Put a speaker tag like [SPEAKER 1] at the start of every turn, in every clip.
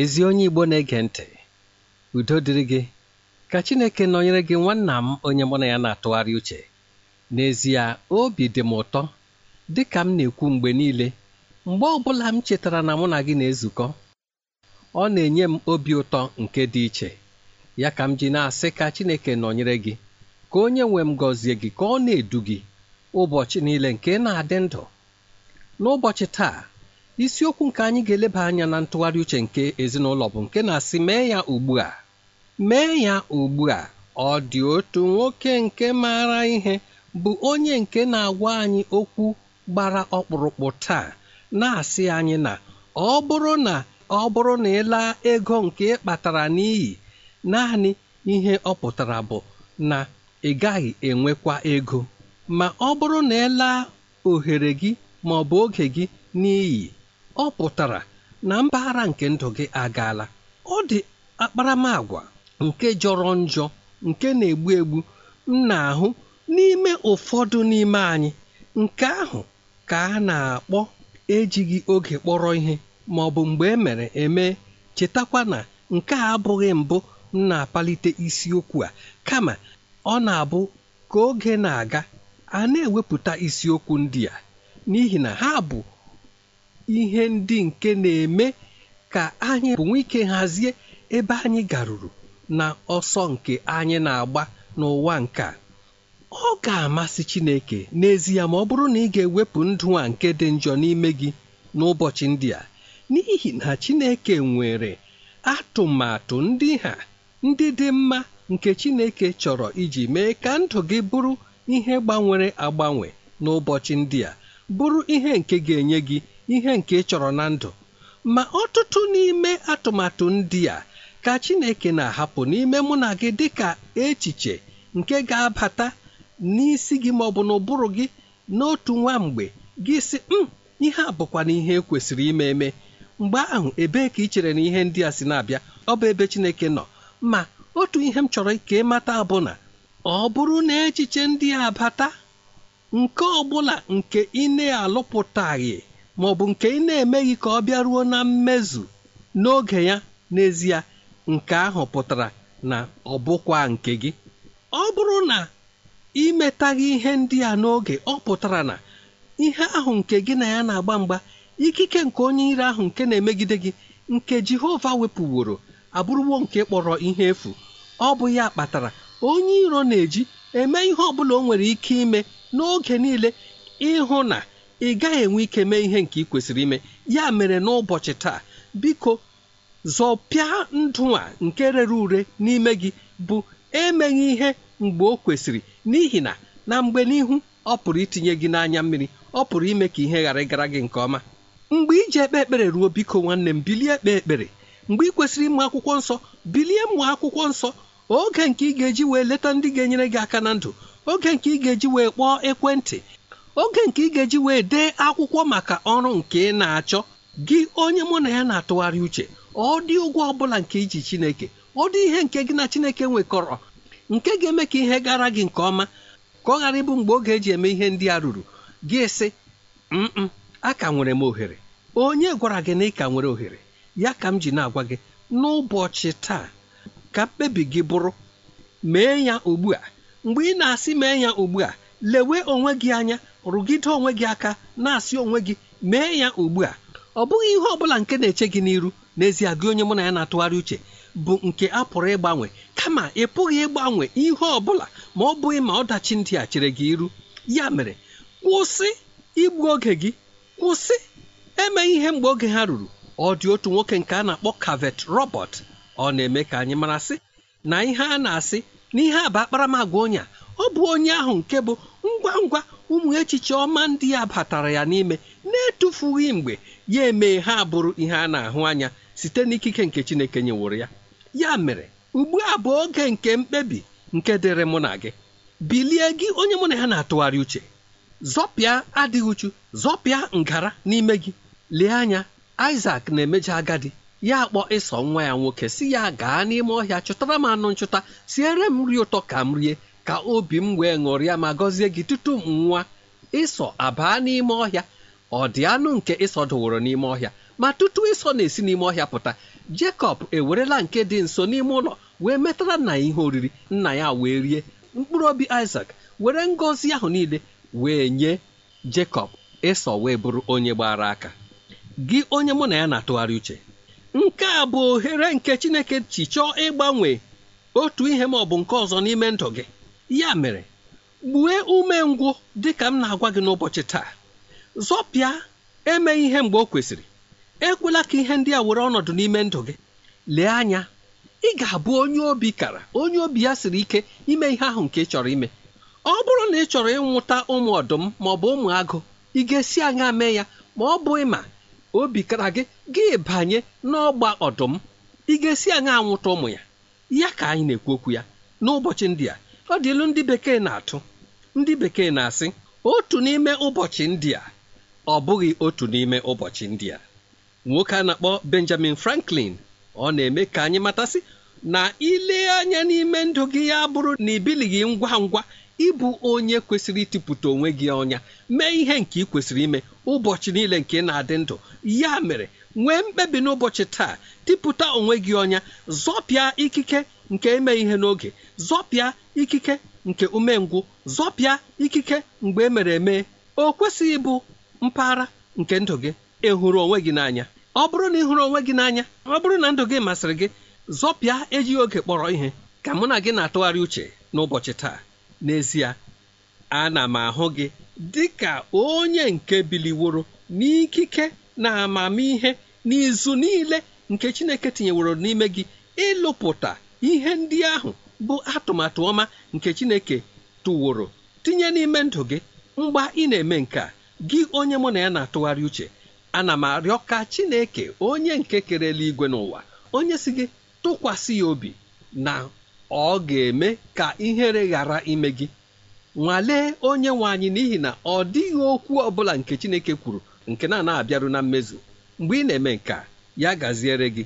[SPEAKER 1] ezi onye Igbo na-ege ntị udo dịrị gị ka Chineke nọnyere gị nwanna m onye mụ na ya na-atụgharị uche n'ezie obi dị m ụtọ dị ka m na-ekwu mgbe niile mgbe ọ bụla m chetara na mụ na gị na-ezukọ ọ na-enye m obi ụtọ nke dị iche ya ka m ji na-asị ka Chineke nọnyere gị ka onye nwe m gọzie gị ka ọ na-edu gị ụbọchị niile nke na-adị ndụ n'ụbọchị taa isiokwu nke anyị ga-eleba anya na ntụgharị uche nke ezinụlọ bụ nke na-asị mee ya ugbu a mee ya ugbu a ọ dị otu nwoke nke maara ihe bụ onye nke na-agwa anyị okwu gbara ọkpụrụkpụ taa na-asị anyị na ọ bụrụ na ọ bụrụ na ị ego nke ị kpatara n'iyi naanị ihe ọ pụtara bụ na ị gaghị enwekwa ego ma ọ bụrụ na ị ohere gị ma ọ bụ oge gị n'iyi ọ pụtara na mpaghara nke ndụ gị agaala ọ dị akparamagwa nke jọrọ njọ nke na-egbu egbu m na-ahụ n'ime ụfọdụ n'ime anyị nke ahụ ka a na-akpọ ejighị oge kpọrọ ihe ma ọ bụ mgbe e mere eme chetakwa na nke a abụghị mbụ m na-apalite isiokwu a kama ọ na-abụ ka oge na-aga a na-ewepụta isiokwu ndị a n'ihi na ha bụ ihe ndị nke na-eme ka anyị bụ ike hazie ebe anyị garuru na ọsọ nke anyị na-agba n'ụwa nke a ọ ga-amasị Chineke n'ezie ma ọ bụrụ na ị ga-ewepụ ndụ a nke dị njọ n'ime gị n'ụbọchị ndị a n'ihi na Chineke nwere atụmatụ ndị ha ndị dị mma nke Chineke chọrọ iji mee ka ndụ gị bụrụ ihe gbanwere agbanwe n'ụbọchị ndị a bụrụ ihe nke ga-enye gị ihe nke ị chọrọ na ndụ ma ọtụtụ n'ime atụmatụ ndị a ka Chineke na-ahapụ n'ime mụ na gị dịka echiche nke ga-abata n'isi gị ma ọ bụ n'ụbụrụ gị n'otu nwa mgbe gị si m hmm, ihe a bụkwa na ihe kwesịrị ime eme mgbe ahụ ebee ka ị chere na ihe ndị a si na-abịa ọ bụ ebe Chineke nọ ma otu ihe m chọrọ ka ị mata bụ na ọ bụrụ na echiche ndị a bata nke ọ bụla nke ị na-alụpụtaghị ma ọ bụ nke ị na-emeghị ka ọ bịaruo na mmezu n'oge ya n'ezie nke ahụ pụtara na ọ bụkwa nke gị ọ bụrụ na imetaghị ihe ndị a n'oge ọ pụtara na ihe ahụ nke gị na ya na-agba mgba ikike nke onye iri ahụ nke na-emegide gị nke Jehova wepụworo abụrụwo nke kpọrọ ihe efu ọ bụ ya kpatara onye iro na-eji eme ihe ọ bụla o nwere ike ime n'oge niile ịhụ na ị gaghị enwe ike mee ihe nke ị kwesịrị ime ya mere n'ụbọchị taa biko zọpịa ndụ a nke rere ure n'ime gị bụ emeghị ihe mgbe o kwesịrị n'ihi na na mgbe n'ihu ọ pụrụ itinye gị n'anya mmiri ọ pụrụ ime ka ihe ghara ịgara gị nke ọma mgbe iji ekpe ekpere ruo biko nwanne m bilie ekpe ekpere mgbe ị kwesịrị ịmụ akwụkwọ nsọ bilie mụọ akwụkwọ nsọ oge nke ị ga-eji wee leta ndị ga-enyere gị aka na ndụ oge nke ị ga-eji wee kpọọ ekwentị oge nke ị ga-eji wee dee akwụkwọ maka ọrụ nke ị na-achọ gị onye mụ na ya na-atụgharị uche ọ dị ụgwọ ọbụla nke iji chineke ọ dị ihe nke gị na chineke nwekọrọ nke ga-eme ka ihe gara gị nke ọma ka ọ ghara ịbụ mgbe oge eji eme ihe ndị a ruru gị sị m a ka nwere m ohere onye gwara gị na ị ka nwere ohere ya ka m ji na-agwa gị n'ụbọchị taa ka mkpebi gị bụrụ mee ya ugbu a mgbe ị na-asị mee ya ugbu a lewe onwe gị anya rụgide onwe gị aka na-asị onwe gị mee ya ugbu a ọ bụghị ihe ọbụla nke na-eche gị n'iru n'ezie gị onye mụ na ya na-atụgharị uche bụ nke a pụrụ ịgbanwe kama ị pụghị ịgbanwe ihe ọ bụla ma ọ bụghị ma ọdachi ndị a chere gị iru ya mere kwụsị igbu oge gị kwụsị eme ihe mgbe oge ha ruru ọ dị otu nwoke nke a na-akpọ Kavet Robert ọ na-eme ka anyị mara sị na ihe a na-asị na ihe a bụ akparamagwa onye a ọ bụ onye ahụ nke bụ ngwa ngwa ụmụ echiche ọma ndị ya batara ya n'ime na-etufughị mgbe ya emee ha bụrụ ihe a na-ahụ anya site n'ikike nke Chineke nyeworo ya ya mere ugbu a bụ oge nke mkpebi nke dịrị mụ na gị bilie gị onye mụ na ya na-atụgharị uche zọpịa adịghị uchu zọpịa ngara n'ime gị lee anya Isaac na-emejọ agadi ya akpọ ịsọ nwa ya nwoke si ya gaa n'ime ọhịa chụtara m anụ nchụta siere m nri ụtọ ka m rie ka obi m wee ṅụrịa ma gọzie gị tutu m nwa ịsọ abaa n'ime ọhịa ọ dị anụ nke ịsọ dụworo n'ime ọhịa ma tutu ịsọ na-esi n'ime ọhịa pụta Jekọb ewerela nke dị nso n'ime ụlọ wee metara nna ya ihe oriri nna ya wee rie mkpụrụ obi isak were ngọzi ahụ niile wee nye Jekọb ịsọ wee bụrụ onye gbara aka gị onye mụ na ya na-atụgharị uche nke a bụ ohere nke Chineke chi chọọ ịgbanwe otu ihe ma ọ bụ nke ọzọ n'ime ndụ gị ya mere gbue ngwụ dị ka m na-agwa gị n'ụbọchị taa zọpịa eme ihe mgbe o kwesịrị ekwela ka ihe ndị a were ọnọdụ n'ime ndụ gị lee anya ị ga-abụ onye obi kara onye obi ya siri ike ime ihe ahụ nke ị chọrọ ime ọ bụrụ na ị chọrọ ịnwụta ụmụ ọdụm ma ọ bụ ụmụ agụ ị ga-esi anya mee ya ma ọ bụ ịma obi kara gị gị banye n'ọgba ọdụm ị ga-esi anya anwụta ụmụ ya ya ka anyị na-ekwu okwu ya n'ụbọchị ndị a ọ dị ndị bekee na-atụ ndị bekee na-asị otu n'ime ụbọchị ndị a ọ bụghị otu n'ime ụbọchị ndị a nwoke a na-akpọ Benjamin Franklin ọ na-eme ka anyị matasị na ile anya n'ime ndụ gị ya bụrụ na ibilighị ngwa ngwa ịbụ onye kwesịrị ịtụpụta onwe gị ọnya mee ihe nke ị kwesịrị ime ụbọchị niile nke na-adị ndụ ya mere nwee mkpebi n'ụbọchị taa tịpụta onwe gị ọnya zọpịa ikike nke ime ihe n'oge zọpịa ikike nke umengwụ zọpịa ikike mgbe e mere eme o kwesịghị ịbụ mpaghara nke ndụ gị ịhụrụ onwe gị n'anya ọ bụrụ na ị hụrụ onwe gị n'anya ọ bụrụ na ndụ gị masịrị gị zọpịa ejighị oge kpọrọ ihe ka mụ na gị na-atụgharị uche n'ụbọchị taa n'ezie ana m ahụ gị dị ka onye nke biliworo n'ikike na amamihe n'izu niile nke Chineke tinyeworo n'ime gị ịlụpụta ihe ndị ahụ bụ atụmatụ ọma nke chineke tụworo tinye n'ime ndụ gị mgba ị na-eme nke a gị onye mụ na ya na-atụgharị uche ana m arịọ ka chineke onye nke kere eluigwe n'ụwa onye si gị tụkwasị ya obi na ọ ga-eme ka ihere ghara ime gị nwalee onye nwe anyị n'ihi na ọ dịghị okwu ọbụla nke chineke kwuru nke na-ana abịaru na mmezu mgbe ị na-eme nke ya gaziere gị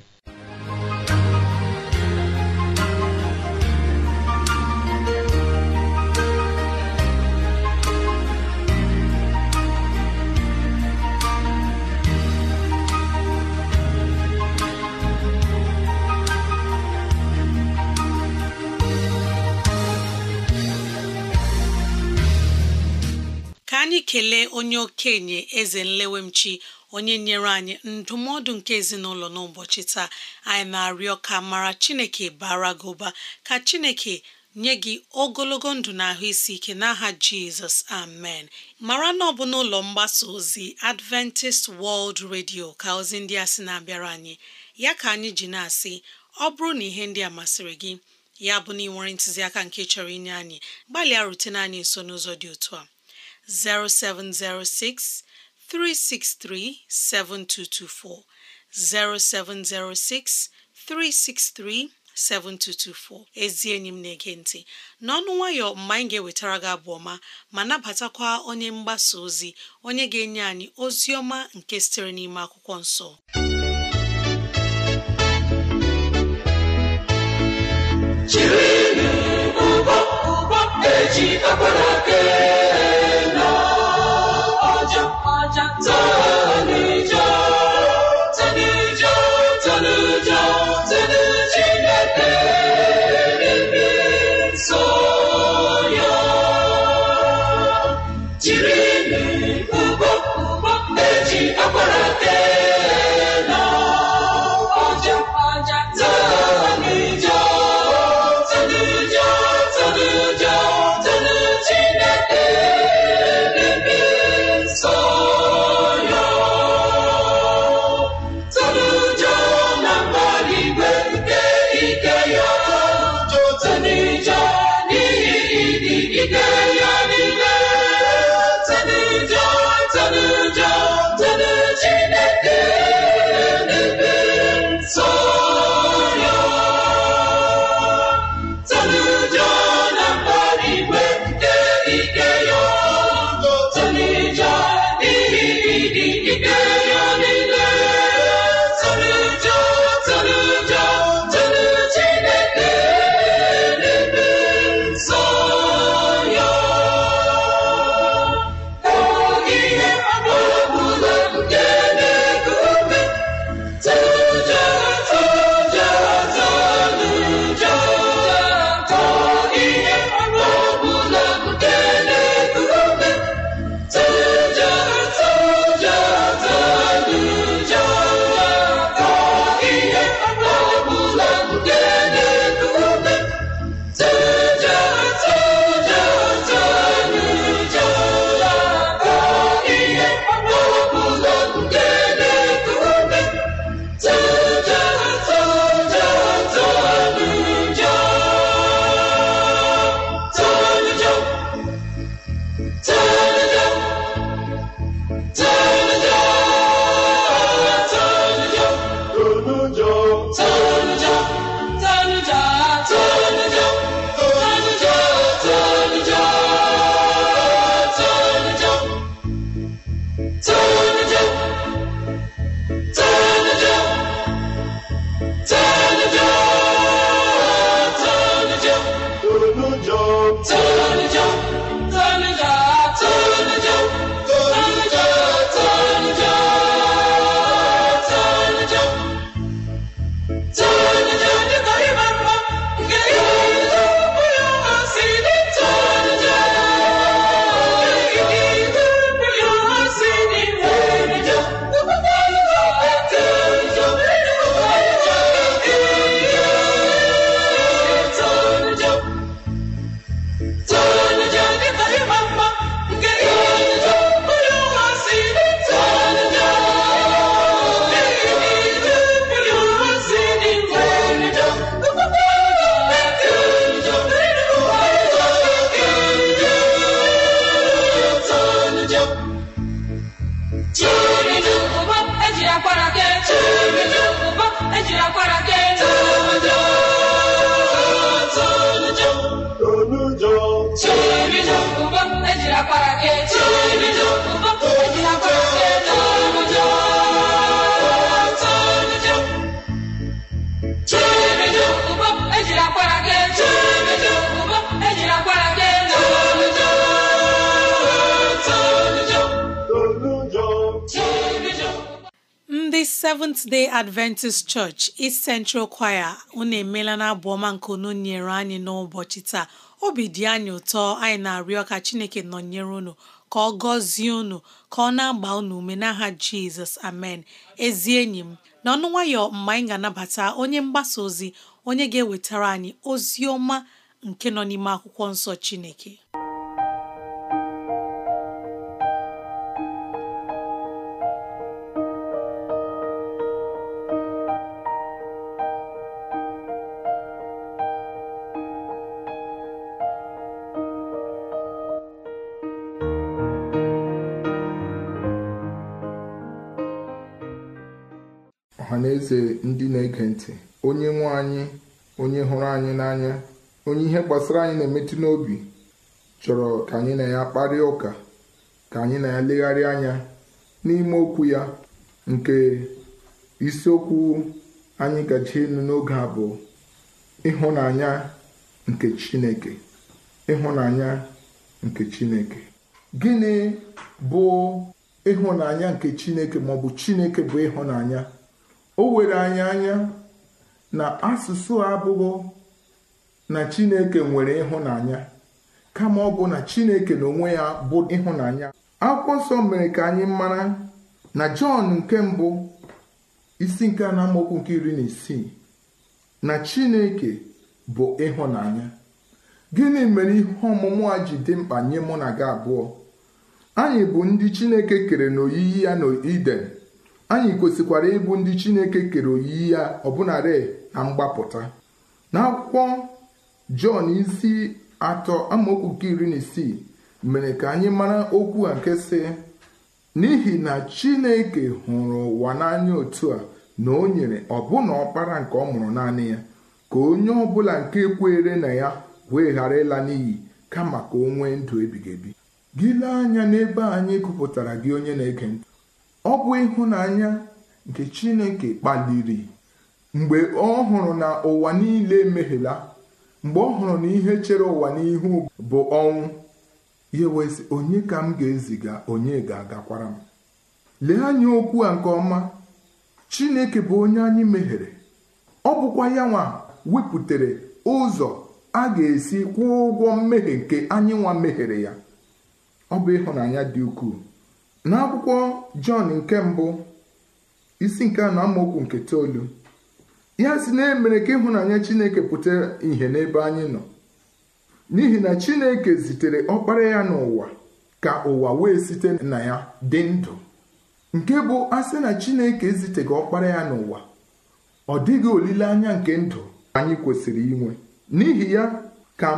[SPEAKER 2] kelee onye okenye eze nlewemchi onye nyere anyị ndụmọdụ nke ezinụlọ n'ụbọchị taa anyị na-arịọ ka mara chineke bara gị ụba ka chineke nye gị ogologo ndụ na ahụ isi ike n'aha jizọs amen mara na ọ bụ n'ụlọ mgbasa ozi adventist world radio ka ozi ndị a sị na-abịara anyị ya ka anyị ji na-asị ọ bụrụ na ihe ndị a masịrị gị ya bụ na ị nwere ntụziaka nke chọrọ inye anyị gbalịa rutene anyị nso n'ụzọ dị otu a 0706 363 7224 0706 363 7224 ezi enyi m na-ege ntị n'ọnụ nwayọ mgbe anyị ga-ewetara gị abụ ọma ma nabatakwa onye mgbasa ozi onye ga-enye anyị ozi ọma nke sitere n'ime akwụkwọ nso.
[SPEAKER 3] jiri ugbo ugbo eji akwara
[SPEAKER 2] Seventh Day Adventist Church East Central Choir unu emeela na abụ ọma nke unu nyere anyị n'ụbọchị taa obi dị anyị ụtọ anyị na-arịọ ka Chineke nọnyere unu ka ọ gọzie unu ka ọ na-agba unu ume n'aha Jizọs amen ezi enyi m n'ọnụ nwayọ mgbe anyị ga-anabata onye mgbasa ozi onye ga-ewetara anyị ozi ọma nke nọ n'ime akwụkwọ nsọ Chineke
[SPEAKER 4] ndị na-ege ntị onye nwe anyị onye hụrụ anyị n'anya onye ihe gbasara anyị na-emetụ n'obi chọrọ ka anyị na ya kparịa ụka ka anyị na ya legharịa anya n'ime okwu ya nke isiokwu anyị gaji elu n'oge a bụ ịhụnanya nke Chineke ịhụnanya nke Chineke gịnị bụ ịhụnanya nke Chineke maọbụ Chineke bụ ịhụnanya o were anya anya na asụsụ abụghị na chineke nwere ịhụnanya kama ọ bụ na chineke na onwe ya bụ ịhụnanya akwụkwọ nsọ mere ka anyị mara na jọn nke mbụ isi nke a na nke iri na isii na chineke bụ ịhụnanya gịnị mere ihe ọmụmụ a ji dị mkpa nye mụ na gị abụọ anyị bụ ndị chineke kere na-oyiyi ya n'iden anyị kwesịkwara ịbụ ndị chineke kere oyiyi ya ọbụnarị na mgbapụta n'akwụkwọ jọn isi atọ amaokwu nke iri na isii mere ka anyị mara okwu a nke si. n'ihi na chineke hụrụ ụwa n'anya otu a na o nyere ọbụna ọkpara nke ọ mụrụ naanị ya ka onye ọbụla nke kwere na ya wee ghara ịla n'iyi kama ka o nwee ndụ ebighị ebi gị anya n'ebe anyị kụpụtara gị onye na-ege ntị ọ bụ ịhụnanya nke chineke kpaliri mgbe ọ hụrụ na ụwa niile emeghela mgbe ọ hụrụ na ihe chere ụwa n'ihu bụ ọnwụ ya wezi onye ka m ga-eziga onye ga-agakwara m lee anya okwu a nke ọma chineke bụ onye anyị mehiere ọ bụkwa ya nwa wepụtara ụzọ a ga-esi kwụọ ụgwọ mmehie nke anyị nwa mehiere ya ọ bụ ịhụnanya dị ukwuu n'akwụkwọ jọn nke mbụ isi nke anọ amaokwu nke itoolu ya si na emere ka ịhụnanya chineke pụta ìhè n'ebe anyị nọ n'ihi na chineke zitere ọkpara ya n'ụwa ka ụwa wee site na ya dị ndụ nke bụ asị na chineke eziteghị ọkpara ya n'ụwa ọ dịghị olileanya nke ndụ anyị kwesịrị inwe n'ihi ya ka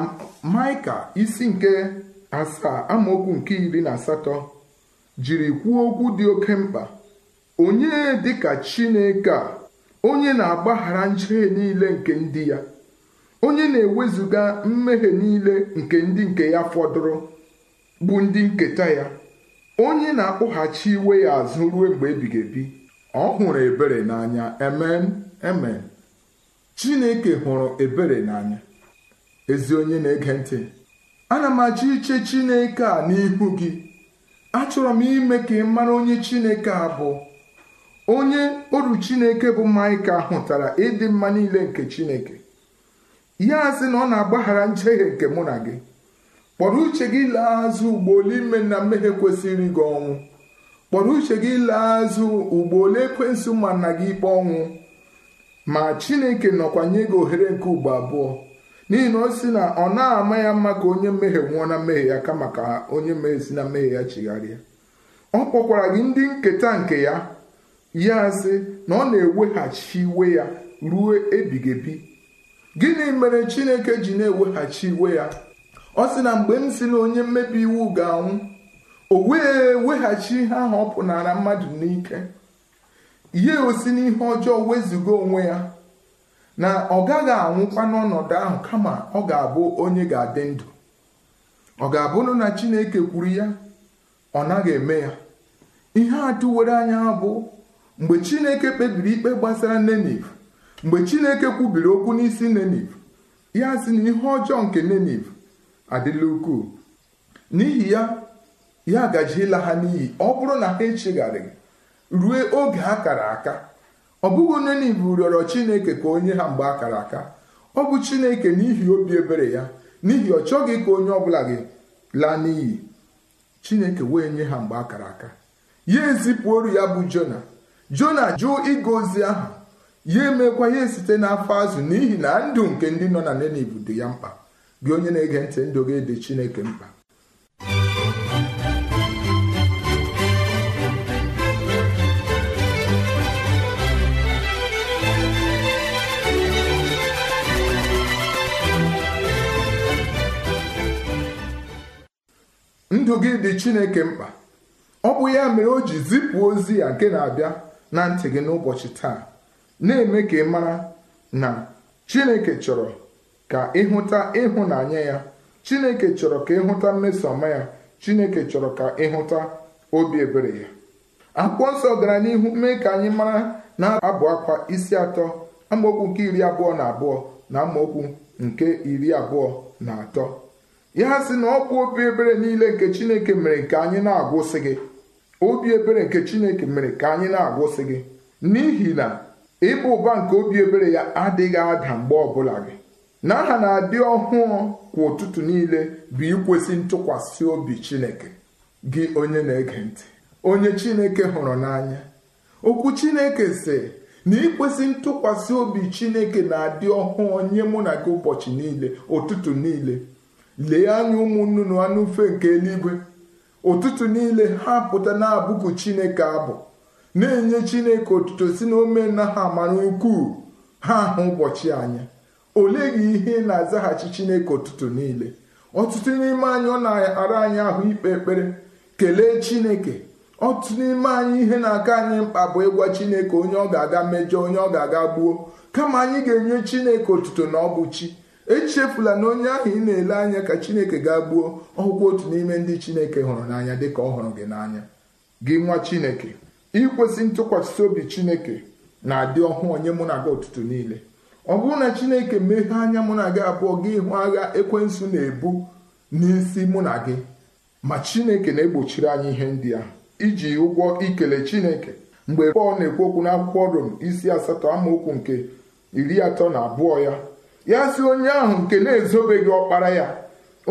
[SPEAKER 4] maịka isi nke asaa amaokwu nke iri na asatọ jiri kwuo okwu dị oke mkpa onye dịka Chineke a onye na-agbaghara njehie niile nke ndị ya onye na-ewezuga mmehie niile nke ndị nke ya fọdụrụ bụ ndị nketa ya onye na-akpụghachi iwe ya azụ ruo mgbe ebighị ebi ọ hụrụ ebere n'anya emen emen Chineke hụrụ ebere n'anya ezi onye na-ege ntị ana m achọ iche Chineke a n'ihu gị achọrọ m ime ka ị mara onye chineke a bụ onye oru chineke bụ maịka hụtara ịdị mma niile nke chineke ya sị na ọ na-agbaghara njehie nke mụ na gị kpọrọ uche gị lee azụ ugbo ole ime na mmehie kwesịrị gị ọnwụ kpọrọ uche gị lee azụ ugbo ole ekwensụ ma nna gị ikpe ọnwụ ma chineke nọkwa nye gị ohere nke ugbo abụọ n'ihi na o si na ọ na-ama ya mma ka onye mmehie nwụọ na mmehie ya kama ka onye mmehie si na mmehie ya chigharịa ọ kpọkwara gị ndị nketa nke ya ya sị na ọ na-eweghachi iwe ya ruo ebighị ebi gịnị mere chineke ji na-eweghachi iwe ya ọ sị na mgbe m si na onye mmebi iwu ga-anwụ o wee weghachi ihe ahụ ọ pụnara mmadụ n'ike ya osi n'ihe ọjọọ wezụga onwe ya na ọ gaghị anwụkwa n'ọnọdụ ahụ kama ọ ga-abụ onye ga-adị ndụ ọ ga-abụrụ na chineke kwuru ya ọ naghị eme ya ihe atụwere anya bụ mgbe chineke kpebiri ikpe gbasara neniv mgbe chineke kwubiri okwu n'isi neniv ya si na ihe ọjọọ nke neniv adịla ukwuu n'ihi ya ya ịla ha n'iyi ọ bụrụ na ha echegharịghị rue oge ha kara aka ọ bụghị onye n'ibu rịọrọ chineke ka onye ha mgbe akara aka ọ bụ chineke n'ihi obi ebere ya n'ihi ọ chọghị ka onye ọ bụla gị laa n'iyi chineke wee nye ha mgbe akara aka ya ezipụ oru ya bụ jona jona jụọ ịga ozi ahụ ya emekwa ya site n'afọ azụ n'ihi na ndụ nke ndị nọ na Ninive dị ya mkpa gị onye na-ege ntị ndụ gị dị chineke mkpa ndụ gị dị chineke mkpa ọ bụ ya mere o ji zipụ ozi ya nke na-abịa na ntị gị n'ụbọchị taa na-eme ka ị mara na chineke chọrọ ka ịhụta ịhụnanya ya chineke chọrọ ka ịhụta mmesoọma ya chineke chọrọ ka ịhụta obi ebere ya akwụkwọ nsọ gara n'ihu mee ka anyị mara na abụ akwa isi atọ amaokwu nke iri abụọ na abụọ na amaokwu nke iri abụọ na atọ ya sị na ọ bụ obi ebere niile nke chineke mere ka anyị na-agwụsị gị obi ebere nke chineke mere ka anyị na-agwụsị gị n'ihi na ịba ụba nke obi ebere ya adịghị ada mgbe ọbụla gị na aha na-adị ọhụụ kwa ụtụtụ niile bụ ikwesị ntụkwasị obi chineke gị onye na-ege ntị onye chineke hụrụ n'anya okwu chineke sị na ikwesị ntụkwasị obi chineke na-adị ọhụụ nye mụ na gị ụbọchị niile ụtụtụ niile lee anya ụmụnnụnụ anụ ufe nke eluigwe ụtụtụ niile ha pụta na-abụku chineke abụ na-enye chineke otuto si na omena ha mara ukwuu ha ahụ ụbọchị anya olee gị ihe ị na-azaghachi chineke ụtụtụ niile ọtụtụ n'ime anyị ọ na-ara anyị ahụ ikpe ekpere kelee chineke ọtụtụ n'ime anyị ihe na-aka anyị mkpa bụ ịgwa chineke onye ọ ga-aga mejọ onye ọ ga-aga gbuo kama anyị ga-enye chineke otuto na ọ bụ chi echefula na onye ahụ ị na-ele anya ka chineke ga gbuo ọhụkwụ otu n'ime ndị chineke hụrụ n'anya dịka ọ hụrụ gị n'anya gị nwa chineke ikwesị ntụkwasị obi chineke na-adị ọhụụ onye mụ na gị ụtụtụ niile ọ bụrụ na chineke meghee anya mụ na gị abụọ gị hụ agha ekwensu na-ebu n'isi mụ na gị ma chineke na-egbochiri anyị ihe ndị a iji ụgwọ ikele chineke mgbe pọl na-ekwu okwu n'akwụkwọ rom isi asatọ amaokwu nke iri atọ na abụọ ya ya si onye ahụ nke na-ezobeghị ọkpara ya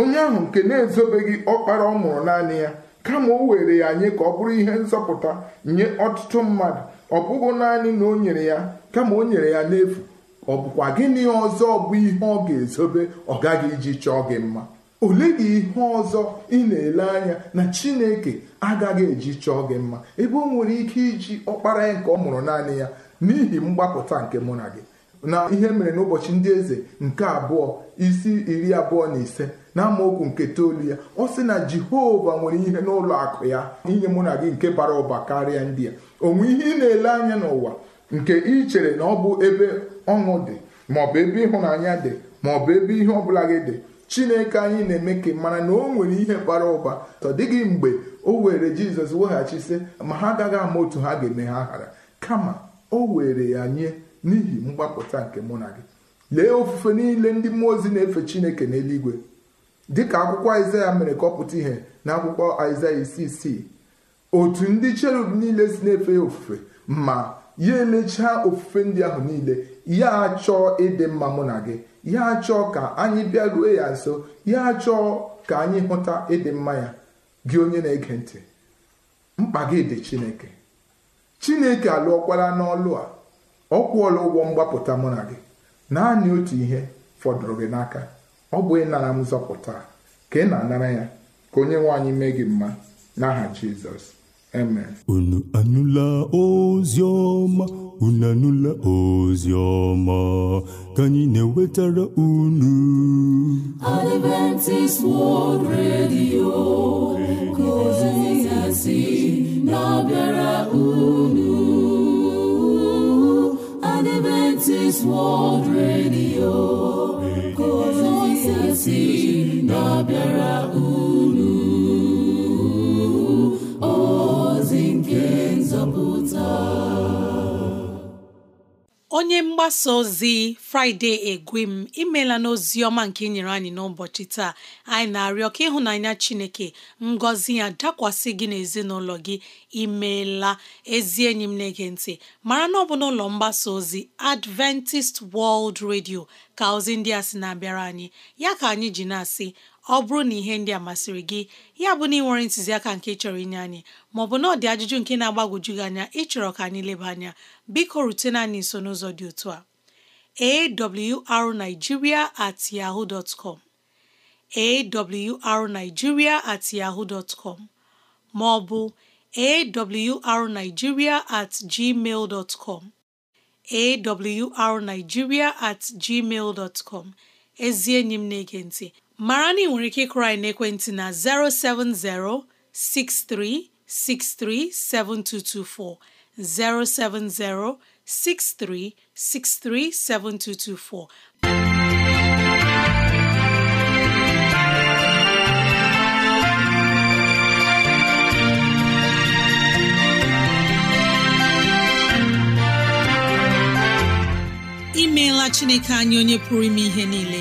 [SPEAKER 4] onye ahụ nke na-ezobeghị ọkpara ọ mụrụ naanị ya kama o were ya nye ka ọ bụrụ ihe nzọpụta nye ọtụtụ mmadụ ọ bụghị naanị na o nyere ya kama o nyere ya n'efu ọ bụkwa gịnị ọzọ bụ ihe ọ ga-ezobe ọ gaghị iji chọọ gị mma ole gị ihe ọzọ ị na-ele anya na chineke agaghị eji chọọ gị mma ebe o nwere ike iji ọkpara ya nke ọ mụrụ naanị ya n'ihi mgbapụta nke mụ na gị na ihe mere n'ụbọchị ndị eze nke abụọ isi iri abụọ na ise na amaokwu nke toolu ya ọ sị na jehova nwere ihe n'ụlọ akụ ya inye mụ na gị nke bara ụba karịa ndị a onwe ihe ị na-ele anya n'ụwa nke ị chere na ọ bụ ebe ọṅụ dị maọbụ ebe ịhụnanya dị maọbụ ebe ihe ọbụla gị dị chineke anyị na-eme ka mara na o nwere ihe bara ụba ọ dịghị mgbe o were jizọs weghachi weghachisị ma ha agaghị ama otu ha ga-eme ha ghara kama o were ya nye n'ihi mgbapụta nke mụ na gị lee ofufe niile ndị mmụọ ozi na-efe chineke n'eluigwe dịka akwụkwọ aịzaya mere ka ọ pụta ihe na akwụkwọ aịzaya isi isii otu ndị cherub niile si na-efe ya ofufe ma ya emechaa ofufe ndị ahụ niile ya achọọ ịdị mma mụ na gị ya achọọ ka anyị bịaruo ya nso ya achọọ ka anyị hụta ịdị mma ya gị onye na-ege ntị mkpa gị dị chineke chineke alụọkwala n'ọlụ a ọ kwụọla ụgwọ mgbapụta mụ na gị naanị otu ihe fọdụrụ gị n'aka ọ bụ ịnara m zọpụta ka ị na-anara ya ka onye nwe anyị mee gị mma n'aha Jizọs unu anụla ozi ọma unu anụla ozi ọma ka anyị na-ewetara unu Adventist World Radio ka ozi na-abịara
[SPEAKER 3] unu World Radio si na-abịara
[SPEAKER 2] unu ozi nke nzọpụta onye mgbasa ozi Fraịde m imela n'ozi ọma nke nyere anyị n'ụbọchị taa anyị na-arịọ ka ịhụnanya Chineke ngọzi ya dakwasị gị n'ezinụlọ gị imeela ezi enyi m na-ege ntị mara na ọ bụ n'ụlọ mgbasa ozi Adventist World Radio ka ozi ndị a sị na-abịara anyị ya ka anyị ji na-asị ọ bụrụ na ihe ndị a masịrị gị ya bụ na ị nwere ntụziaka nke chọrọ inye anyị maọbụ na ọ dị ajụjụ nke na-agbagwoju gị anya ịchọrọ ka anyị leba anya biko rutena anyị nso n'ụzọ dị otu a awrnigeria at yahoo dot com awrnigeria at com maọbụ arigiria at gmail com at gmail com ezi enyi m na-ege ntị mara na ị nwere ike ịkụrụ n'ekwentị na 070 6363 7224 070 6363 7224. imeela chineke anyị onye pụrụ ime ihe niile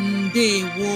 [SPEAKER 2] ndewo